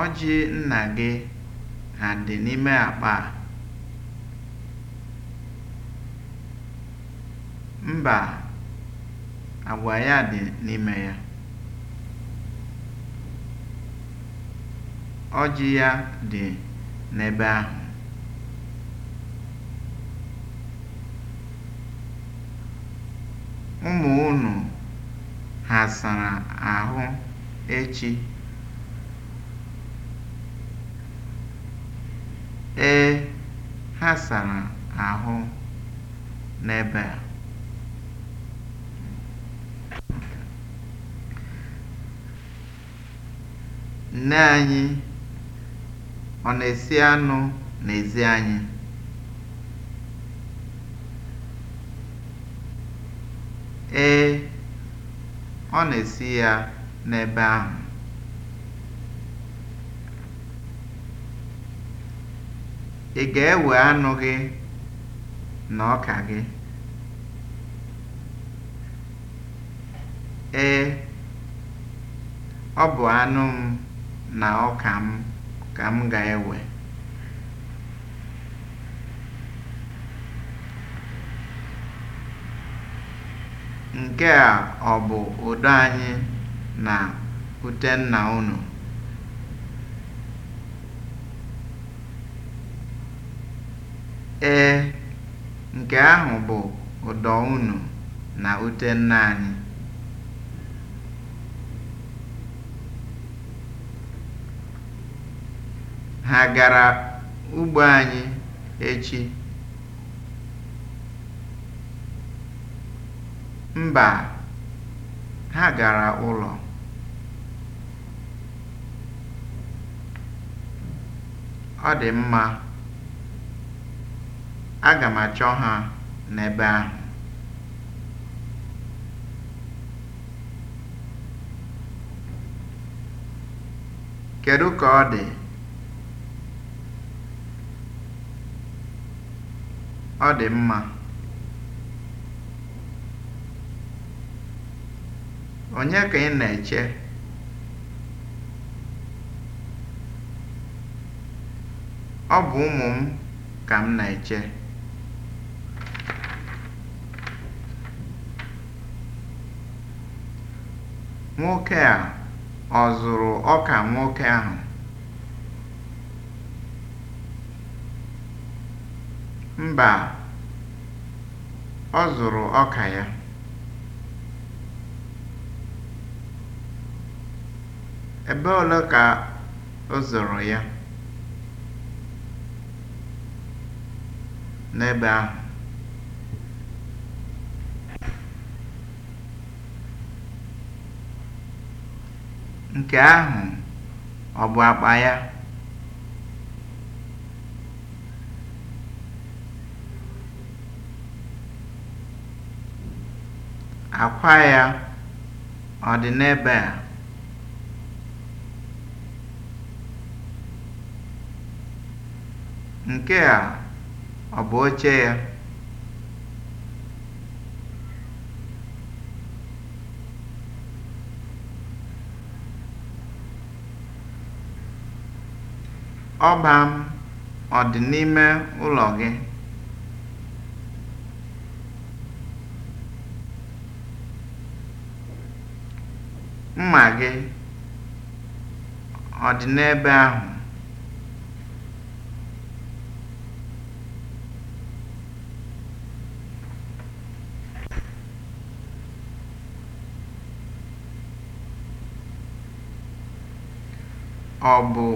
Ọjị nna gị ha dị n'ime akpa a? Mba, agwa ya dị n'ime ya. Ọjị ya dị n'ebe ahụ. Ụmụ unu ha sara ahụ echi? Ee, ha sara ahụ n'ebe a. Nne anyị ọ na-esi anụ n'ezi anyị? Ee, ọ na-esi ya n'ebe ahụ. Ị ga-ewe anụ gị na ọka gị? Ee, ọ bụ anụ m na ọka m ka m ga-ewe. Nke a ọ bụ ụdọ anyị na nna unu? Ee, nke ahụ bụ ụdọ unu na ute nne anyị. Ha gara ugbo anyị echi? Mba, ha gara ụlọ. Ọ dị mma. Aga m achọ ha n'ebe ahụ. Kedu ka ọ dị? Ọ dị mma. Onye ka ị na-eche? Ọ bụ ụmụ m ka m na-eche. Nwoke a ọ zụrụ ọka nwoke ahụ? Mba, ọ zụrụ ọka ya. Ebe ole ka ọ zụrụ ya? N'ebe ahụ. Nke ahụ ọ bụ akpa ya? Akwa ya ọ dị n'ebe a? Nke a ọ bụ oche ya? Ọba m ọ dị n'ime ụlọ gị? Mma gị ọ dị n'ebe ahụ? Ọ bụ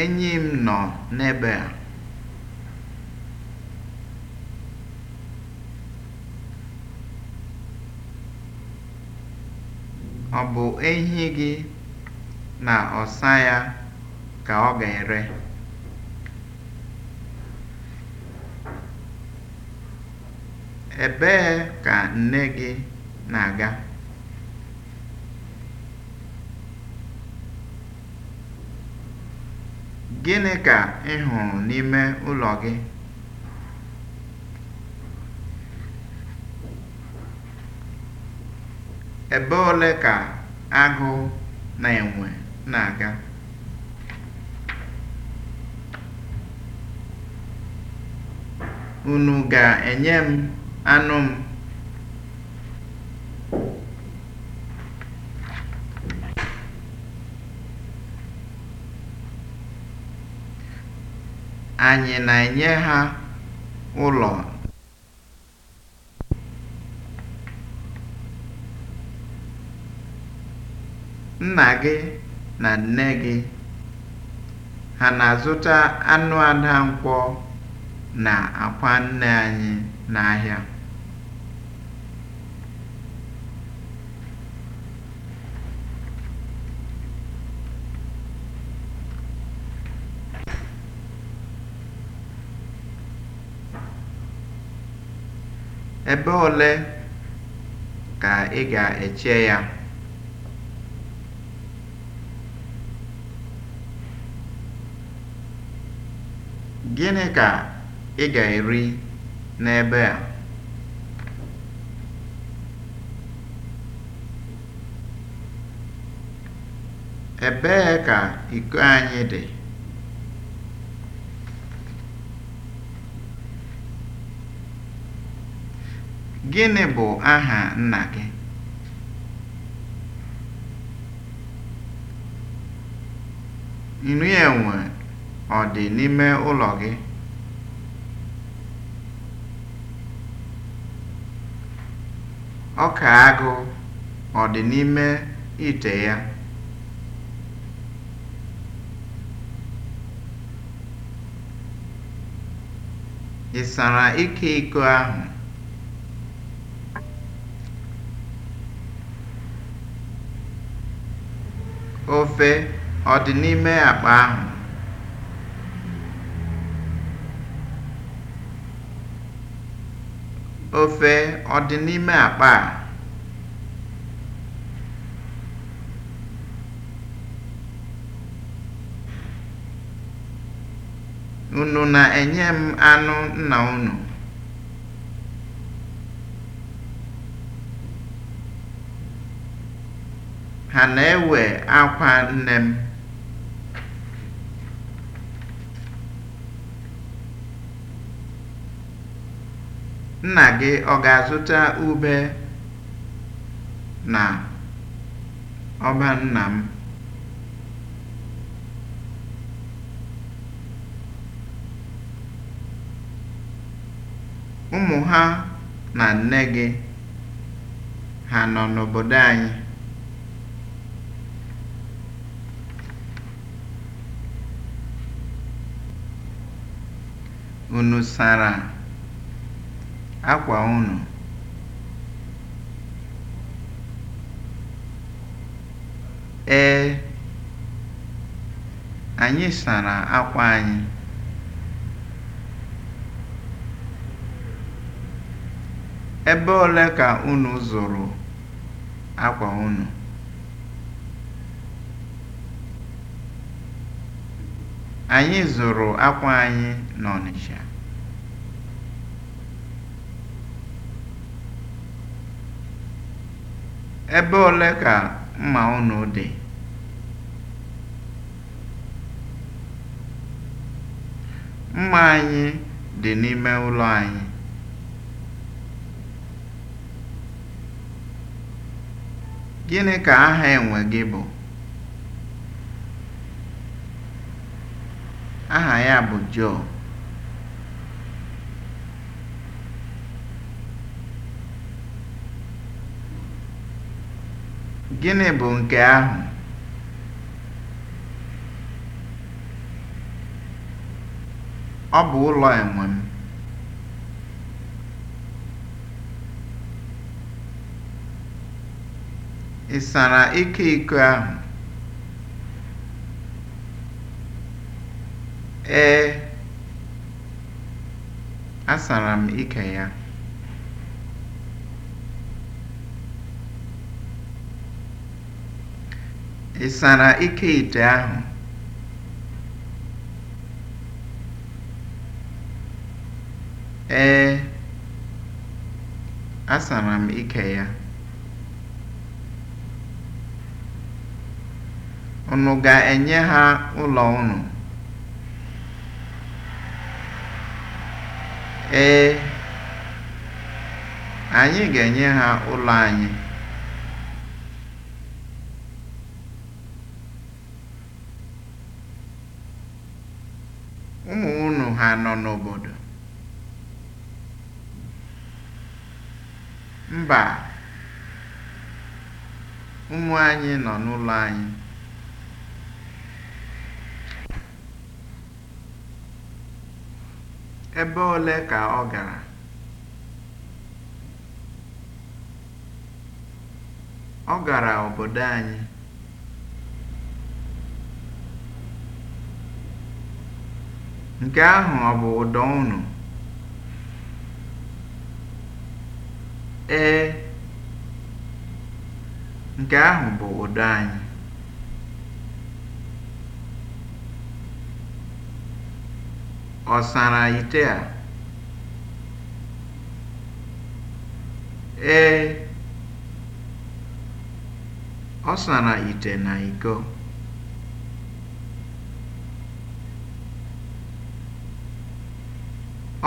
Enyi m nọ n'ebe a. Ọ bụ ehi gị na ọsa ya ka ọ ga-ere? Ebee ka nne gị na-aga? Gịnị ka ị hụrụ n'ime ụlọ gị? Ebe ole ka agụ na enwe na-aga? Unu ga-enye m anụ m? Anyị na-enye ha ụlọ? Nna gị na nne gị ha na-azụta anụ Adankwọ na akwa nne anyị n'ahịa? Ebe ole ka ị ga-eche ya? Gịnị ka ị ga-eri n'ebe a? Ebee ka iko anyị dị? Gịnị bụ aha nna gị? Nri enwe ọ dị n'ime ụlọ gị? Ọka agụ ọ dị n'ime ite ya? Ị sara ike iko ahụ? Ofe ọ dị n'ime akpa ahụ? Ofe ọ dị n'ime akpa a? Unu na-enye m anụ nna unu? ha na-ewe akwa nne m nna gị ọ ga-azụta ube na ọba nna m ụmụ ha na nne gị ha nọ n'obodo anyị Unu sara akwa unu? Ee, anyị sara akwa anyị. Ebe ole ka unu zụrụ akwa unu? Anyị zụrụ akwa anyị n'Ọnịsha. Ebe ole ka mma unu dị? Mma anyị dị n'ime ụlọ anyị. Gịnị ka aha enwe gị bụ? Aha ya bụ Joe. Gịnị bụ nke ahụ? Ọ bụ ụlọ enwe m. Ị sara ike iko ahụ? Ee, asara m ike ya. Ị sara ike ite ahụ? Ee, asara m ike ya. Unu ga-enye ha ụlọ unu? Ee, anyị ga-enye ha ụlọ anyị. ha nọ n'obodo? Mba, ụmụ anyị nọ n'ụlọ anyị. Ebe ole ka ọ gara? Ọ gara obodo anyị. Nke ahụ ọ bụ ụdọ unu? Ee, nke ahụ bụ ụdọ anyị. Ọ sara ite a? Ee, ọ sara ite na iko.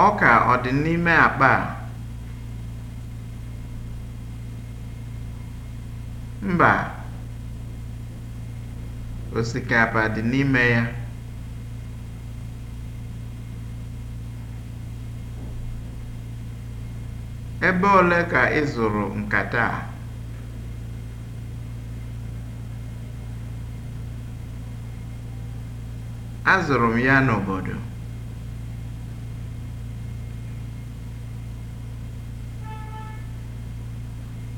Ọka ọ dị n'ime akpa a? Mba, osikapa dị n'ime ya. Ebe ole ka ị zụrụ nkata a? Azụrụ m ya n'obodo.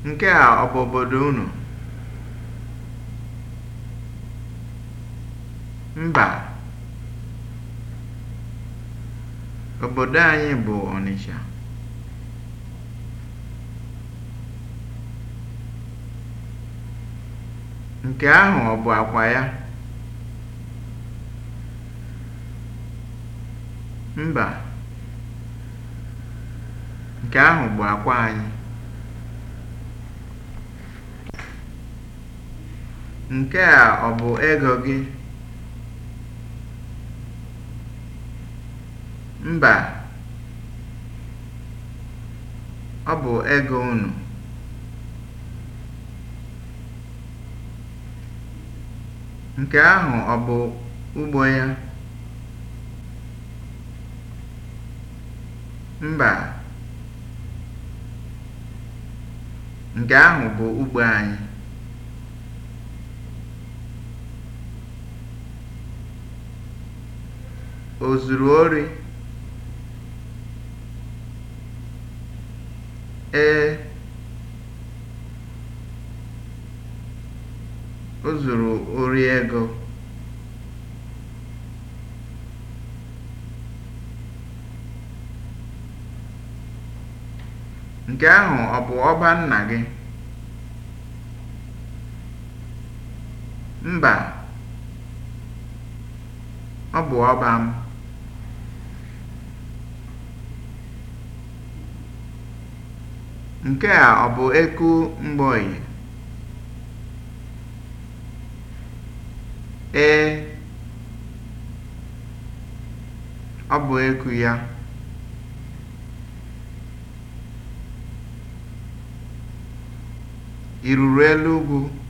Nke a ọ bụ obodo unu? Mba, obodo anyị bụ Onitsha, Nke ahụ ọ bụ akwa ya? Mba, nke ahụ bụ akwa anyị. Nke a ọ bụ ego gị? Mba, ọ bụ ego unu. Nke ahụ ọ bụ ugbo ya? Mba, nke ahụ bụ ugbo anyị. ozuru Ee, o ori ego. Nke ahụ ọ bụ ọba nna gị? Mba, ọ bụ ọba m. Nke a ọ bụ eku mgbọnyị, Ee, ọ bụ eku ya. Ị elu ugwu?